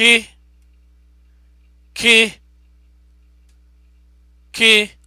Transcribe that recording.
kị kị kị